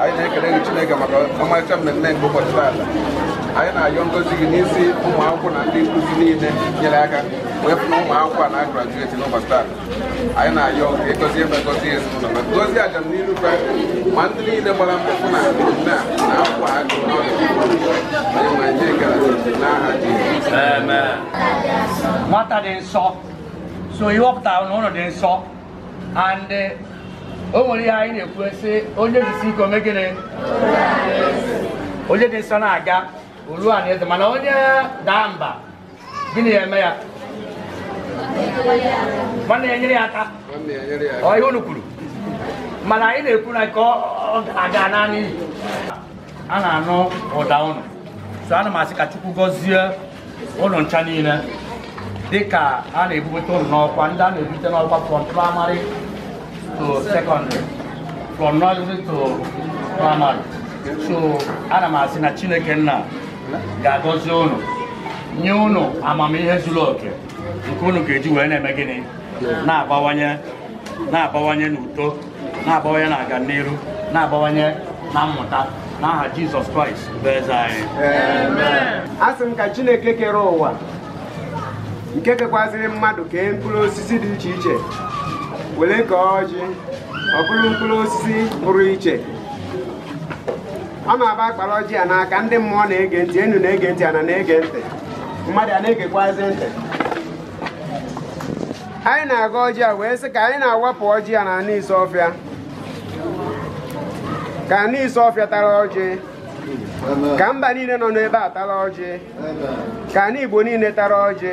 anyị na-ekele Chineke maka ọmarịcha mmemme nke ụbọchị taata anyị na-ayọ ngozi gị n'isi ụmụ akwụkwọ na ndị nkuzi niile nyere aka wee pụ na ụmụ a na-agrajueti n'ụbọchị taata anyị na-ayọ gị gozie ebe ezinụlọ ma aja n'iru ndị niile gbara mkpụrụ na mmemme a na akwụkwọ n'aha nwata dị nsọ so ihe dị nsọ and eh, o nwere ihe anyị na-ekwu e sị onye jisi ike omegịnị onye dị nsọ na-aga olu a na eze mana onye daa mba gịnị ya eme ya nwanne ya nyere ya aka ọ ihe unu kwuru mana anyị na-ekwu na ka ọ ga naanị a na-anụ ụda ụnụ so ana m asị ka chukwu gọzie ụlọ ncha niile dịka a na-ebubata ụlọ n'ọkwa ndị a na-ebute n'ọkwa from praịmarị to secondary from nursery to primary so ana m asị na chineke nna ga-agọzi unu nye unu amamihe zuru oke nke unu ga-eji wee na-eme gịnị na-abawanye na-abawanye n'uto na-abawanye na aga n'iru na-abawanye na mmụta n'aha jizọs kraịst bụ eze anyị a sị m ka chineke kere ụwa nke kekwaziri mmadụ kee mkpụrụ osisi dị iche iche were ka ọjị ọ mkpụrụ osisi pụrụ iche ọ na-aba akpara ọjị ya n'aka ndị mmụọ na-ege ntị enu na-ege ntị ana na-ege ntị mmadụ a na-egekwazi ntị anyị na-aga ọjị a wee sị ka anyị na-awapụ ọjị a na ana ise ọfịa ka ana ise ọfịa tara ọjị ka mba niile nọ n'ebe a tara ọjị ka ana igbo niile tara ọjị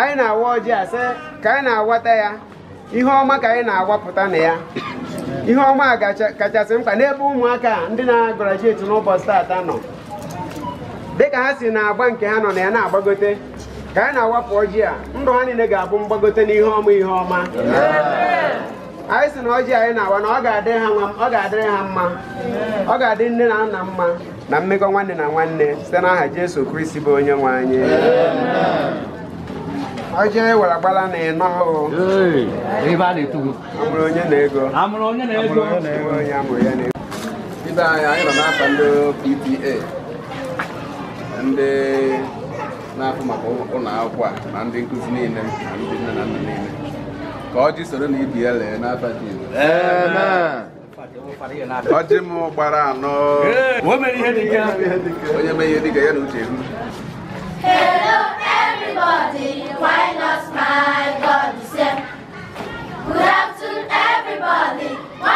anyị na-awa ọjị a sị ka anyị na-awata ya ihe ọma ka anyị na-agbapụta na ya ihe ọma kachasị mkpa n'ebe ụmụaka ndị na-agarajuetu n'ụbọchị taata nọ dịka ha si na-agba nke ha nọ na ya na-agbagote ka anyị na-awapụ ọjị a ndụ ha niile ga-abụ mgbagote ihe ọma ihe ọma anyị si na ọjị anyị na-awa na ọ ga-adịrị ha mma ọ ga-adị nne na nna mma na mmekọ nwanne na nwanne site n'aha Jesu Kristi bụ onye nwe anyị ọjị ewere gbala na ịnọ ebe a na-eto amụrụ onye na-ego amụrụ onye na-ego onye amụrụ ya na-ego ibe anyị anyị nọ n'afọ ndị PTA ndị na-afụ maka ụlọ akwụkwọ a na ndị nkuzi niile na ndị nne na nna niile ka ọjị soro na ibi e ya lee n'afọ dị ọjị m gbara anọ onye mee ihe dịka ya na uche hu Hello everybody! Why not, my God, you said. Good afternoon, everybody.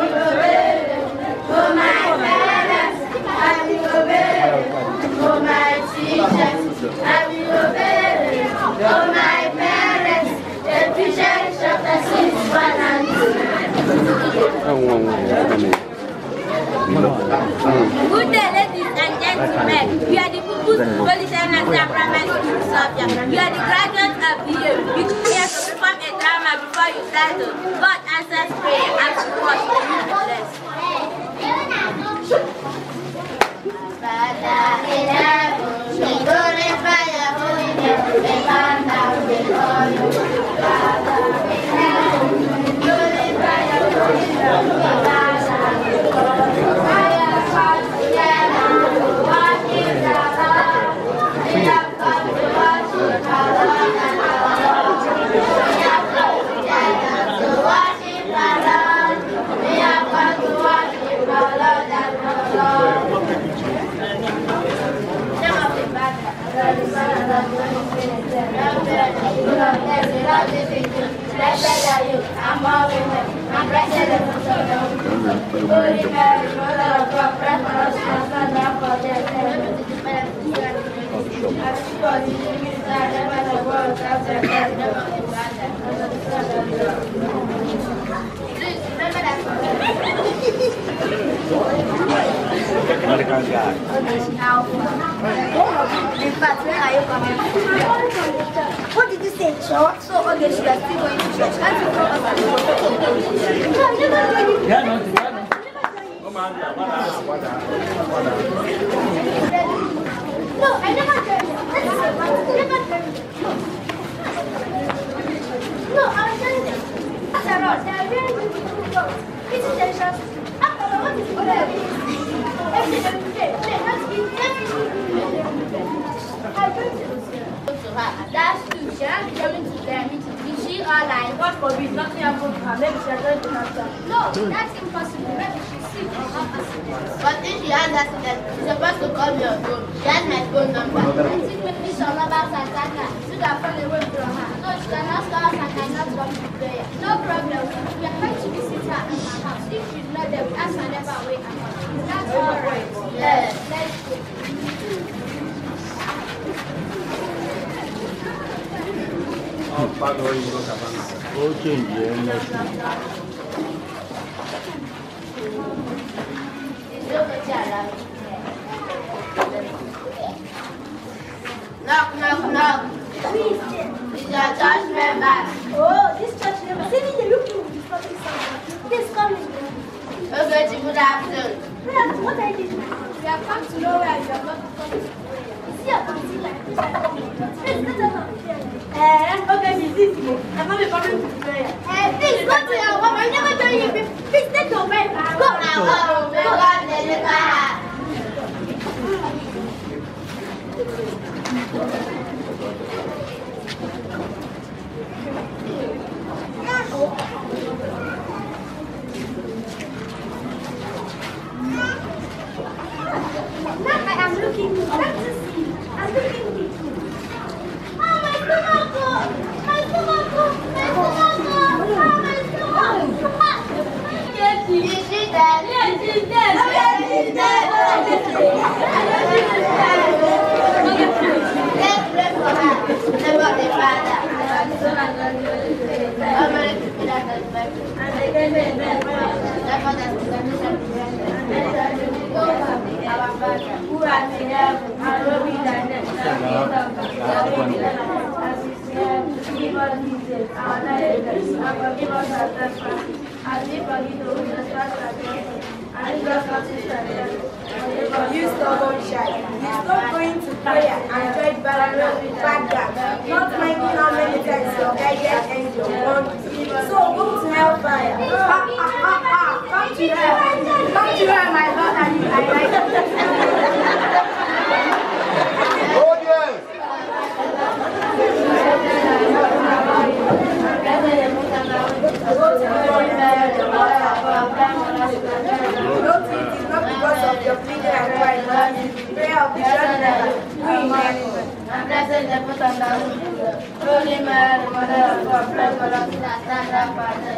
Good day, ladies and gentlemen. You are the pupils, politicians, and primary school subjects. You are the graduates of the year. You come here to perform a drama before you start. But answers prayer and to watch you blessed. Not a good guy. In fact, where are you coming from? sure. So all okay, she are still going to church. And you come as a No, I never do anything. Yeah, no, no, I never joined. I never joined. No, I was joined them. After all, they are very beautiful girls. It's intentions. After all, what is the other Everything they play, play, not be everything they play. I joined them. To her, that's true. She has become still alive. No, that's impossible. But if she has accident, she's supposed to call me on phone. She phone number. I think maybe some robbers attack her. She can fall away from her. No, she cannot stop us and cannot come to No problem. We are going to visit at her house. If she's not there, we ask never away. Is that all right? Yes. Thank Knock, knock, knock. Please, member? Oh, this member. me, Please come in. Okay, What are you We to know where you are going to come. 咱们得把这 prayer and joined by Father, not minding how many times your guided angel warned you. So go to hellfire. Ha, ha, ha, ha. Come to hell. Come to hell,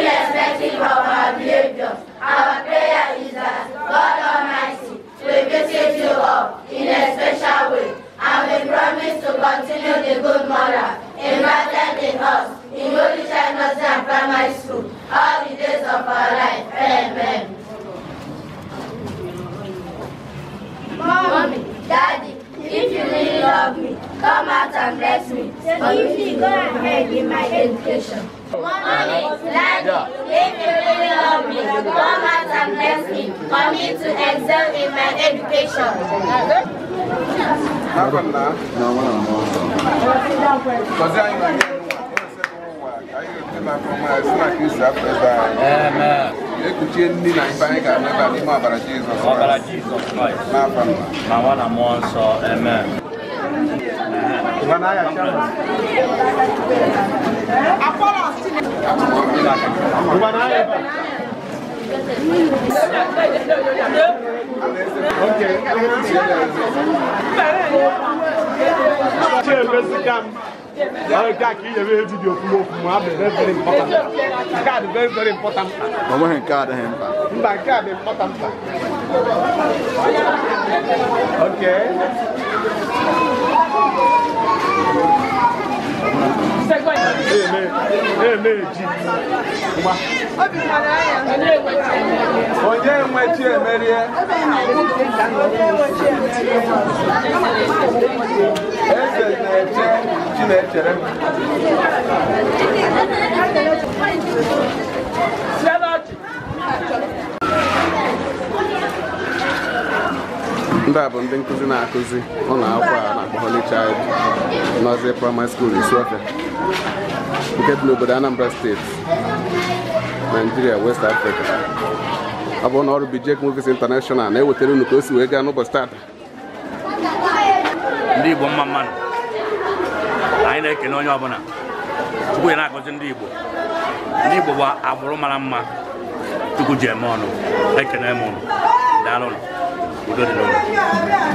irrespective of our behavior. Our prayer is that God Almighty will visit you all in a special way, and we promise to continue the good moral imparted in us in Yolisha Nursery and Primary School all the days of our life. Amen. Mommy, Daddy, if you really love me, come out and bless me. So give me go ahead in my education. Money, learning, if you really love me, come out and bless me. For me to excel in my education. Amen. ekuchie ndị na ife anyị ga-ameba n'ime ọbara Jizọs. ọbara Jizọs Kraịst. n'afọ a. ma nwa na mmụọ nsọ. Amen. Card very very important. Mama hen card hen ba. Mba card important. Okay onye enwechi emerie eze na-eche chi na-echere m ndị a bụ ndị nkụzi na-akụzi ụlọ akwụkwọ a na-akpọ Holy Child Nursery Primary School nke dị n'obodo Anambra steeti Nigeria West Africa ọ bụ na ọrụ Bijec Movies International na-ewetara unu ka o si wee gaa n'ụbọchị taata ndị Igbo mma mmadụ anyị na-ekene onye ọbụla Chukwu ya na-akụzi ndị Igbo ndị Igbo bụ agbụrụ mara mma Chukwu ji eme ọnụ ekene m ụnụ daalụ Good enough.